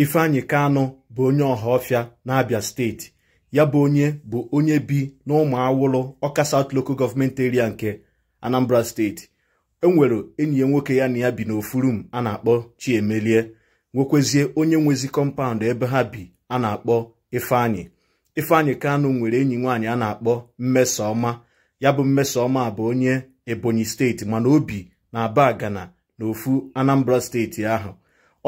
ifeanyi kanụ bụ onye ọha ọhaọfịa n'abia steeti ya bụ onye bụ onye bi n'ụmụ awụlụ ọka South Local Government Area nke Anambra steeti enwere enyi ya nwoke ya na ya bi n'ofurum a na-akpọ Chiemelie nwekwezie onye nwezi kọmpaụnd ebe ha bi a na-akpọ Ifeanyi Ifeanyi Kanụ nwere enyi nwaanyị a na-akpọ mmesoọma ya bụ Mmesoma bụ onye Ebonyi steeti mana o bi na Aba Agana n'ofu Anambra steeti ahụ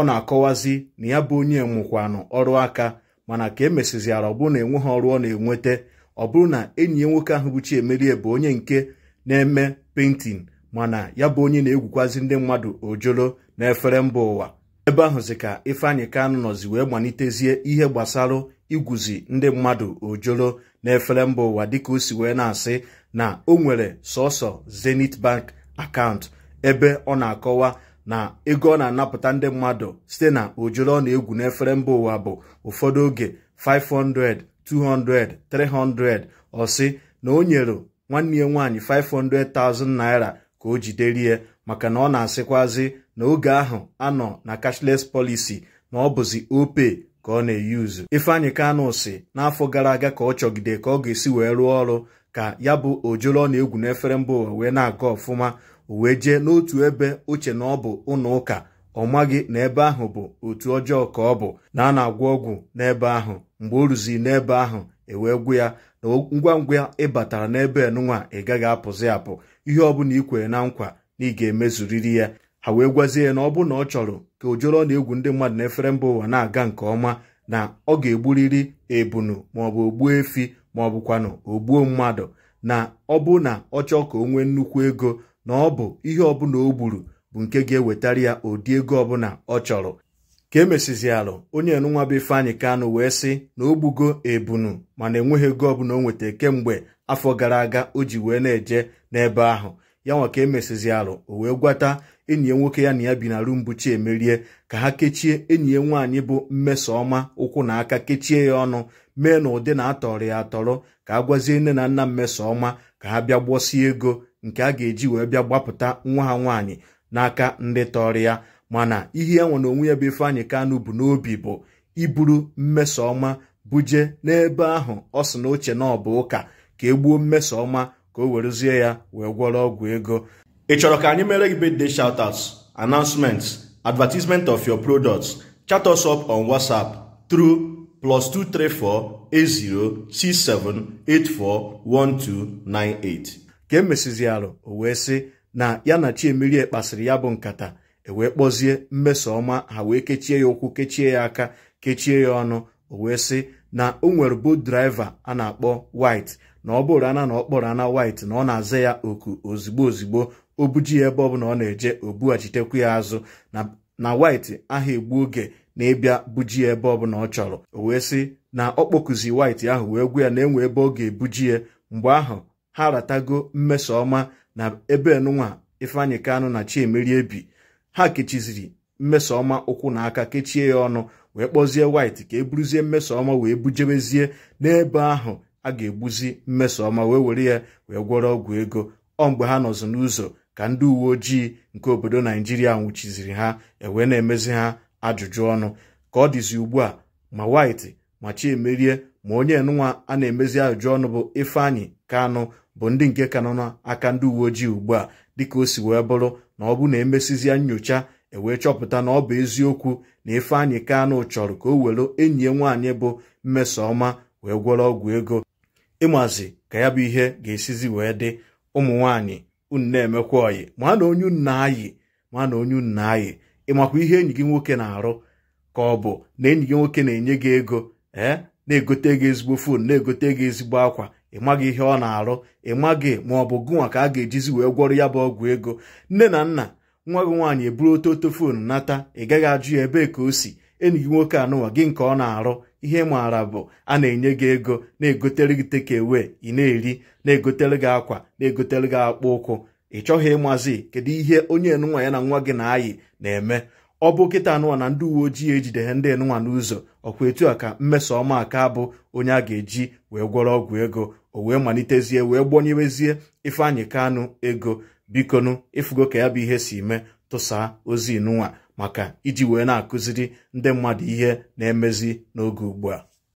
ọ na-akọwazi na ya bụ onye nwụkwanụ ọrụ aka mana ka emesiziara ọ bụrụ na enweghị ọrụ ọ na-enweta ọ bụrụ na enyi ya nwoke ahụ bụ Chiemerie bụ onye nke na-eme pentin mana ya bụ onye na-egwukwazi ndị mmadụ ojolo na efere mba ụwa ebe ahụzi ka Ifeanyị Kanụ nọzi wee malitezie ihe gbasara igwuzi ndị mmadụ ojolo na efere mba ụwa dịka o si wee na-asị na o nwere sọsọ Zenith Bank akaụntụ ebe ọ na-akọwa na ego ọ na-anapụta ndị mmadụ site na ojoro ọ na-egwu n'efere mba ụwa bụ ụfọdụ oge 500 200 300 na o nyere nwanne ya nwaanyị 500,000 naira ka o jiderie maka na ọ na-asịkwazi na oge ahụ anọ na cashless policy na ọ bụzi ope ka ọ na-eyuzu Ifeanyị Kanụ n'afọ gara aga ka ọ chọgide ka ọ ga-esi wee rụọ ọrụ ka ya bụ ojoro ọ na-egwu n'efere mba ụwa wee na-aga ọfụma o wee jee n'otu ebe uche na ọ bụ ụlọ ụka ọ maghị na ebe ahụ bụ otu ọjọọ ka ọ bụ na a na-agwọ ọgwụ n'ebe ahụ mgbe o ruziri n'ebe ahụ ewee gwụ ya na ngwa ngwa ị batara n'ebe enunwa ị gaghị apụzi apụ ihe ọbụla ị kwere na nkwa na ị ga-emezuriri ya ha wee gwazie ya na ọ bụrụ na ọ chọrọ ka ojoro na egwu ndị mmadụ efere mba ụwa na-aga nke ọma na ọ ga-egburiri ebunu maọbụ ogbuo efi maọbụkwanụ ogbuo mmadụ na ọ bụ na ọ chọọ ka o nwee nnukwu ego na ọ bụ ihe ọbụla o gburu bụ nke ga-ewetara ya ụdị ego ọbụla ọ chọrọ ka e onye enunwa bụ Ifeanyị Kanụ wee sị na o gbugo ebunu mana enweghị ego ọbụla o kemgbe afọ gara aga o ji wee na-eje n'ebe ahụ ya nwa ka emesizialụ o wee gwata enyi ya nwoke ya na ya bi na Rumbuchi Emerie ka ha kechie enyi ya nwaanyị bụ Mmesoma ụkwụ na aka kechie ya ọnụ mee na ụdị na atọrọ ya atọrọ ka a gwazie nne na nna Mmesoma ka ha bịa ego nke a ga-eji wee bịa gbapụta nwa ha nwaanyị n'aka ndị tọrọ ya mana ihe ya nwe na onwe ya bụ Ifeanyị Kanụ bụ n'obi bụ iburu mmeso ọma buje n'ebe ahụ ọ sị na oche na ọ bụ ụka ka e gbuo mmeso ọma ka o werezie ya wee gwọrọ ọgwụ ego ị chọrọ ka anyị mere gị birthday shoutouts announcements advertisement of your products chat us up on WhatsApp through plus 2348067841298 ka emesizi alụ o wee sị na ya na Chiemerie kpasịrị ya bụ nkata e wee kpọzie mmeso ọma ha wee kechie ya ụkwụ kechie ya aka kechie ya ọnụ o wee sị na o nwere boot a na-akpọ wit na ọ bụrụ ana na ọ ana White na ọ na-aza ya oku ozigbo ozigbo o buji ya ebe ọ na ọ na-eje o bughachitekwa ya azụ na wit aha egbu oge na-ebịa buji ya ebe ọbụla ọ chọrọ o wee sị na ọ kpọkuzi white ahụ wee gwa ya na enwe ebe ọ ga-ebuji ya mgbe ahụ ha ratago mmeso ọma na ebe nụnwa ifeanyị kanụ na chiemeri ebi ha kechiziri mmeso ọma ụkwụ na aka kechie ya ọnụ wee kpọzie white ka e buruzie mmeso ọma wee bujebezie n'ebe ahụ a ga-egbuzi mmeso ọma wee were ya wee gwọrọ ọgwụ ego ọ mgbe ha nọzụ n'ụzọ ka ndị uwe ojii nke obodo naijiria nwụchiziri ha ewee na-emezi ha ajụjụ ọnụ ka ọ dịzi ugbu a ma White ma Chiemerie ma onye nwa a na-emezi ajụjụ ọnụ bụ Ifeanyi Kanụ bụ ndị nke ka na n'aka ndị uwe ojii ugbu a dịka o si wee bụrụ na ọ bụ na emesizie nyocha ewee chọpụta na ọ bụ eziokwu na Ifeanyi Kanụ chọrọ ka o were enyi ya nwaanyị bụ Mmesoma wee gwọrọ ọgwụ ego ịmazi ka ya bụ ihe ga-esizi wee dị ụmụ nwaanyị unu na-emekwa ọyị ma na onye unu na-ayị ma na onye unu na-ayị ị makwa ihe enyi gị nwoke na-arụ ka ọ bụ na enyi gị nwoke na-enye gị ego ee eh, na-egote gị ezigbo fon na-egote gị ezigbo akwa ị maghị ihe ọ na-arụ ị maghị ma ọ bụ gụnwa ka a ga-ejizi wee gwọrọ ya bụ ọgwụ ego nne na nna nwa gị nwaanyị eburu ototo fon nata ị gaghị ajụ ya ebee ka o si enyi gị nwoke anụnwa gị nke ọ na-arụ ihe maara bụ a na-enye gị ego na-egotere gị tekewe ị na-eri na-egotere gị akwa na-egotere gị akpụ ụkwụ ị chọghị ịmazi kedu ihe onye enunwa ya na nwa gị na-ayị na-eme ọ bụ kịta anụnwa na ndị uwe ojii ejideghe ndị enunwa n'ụzọ ọkwa etu a ka mmeso ọma aka bụ onye a ga-eji wee gwọrọ ọgwụ ego o wee malitezie wee gbonyewezie Ifeanyị Kanụ ego bikonu ịfụgo ka ya bụ ihe si mee tụsaa ozi nụnwa maka iji wee na-akụziri ndị mmadụ ihe na-emezi n'oge ugbu a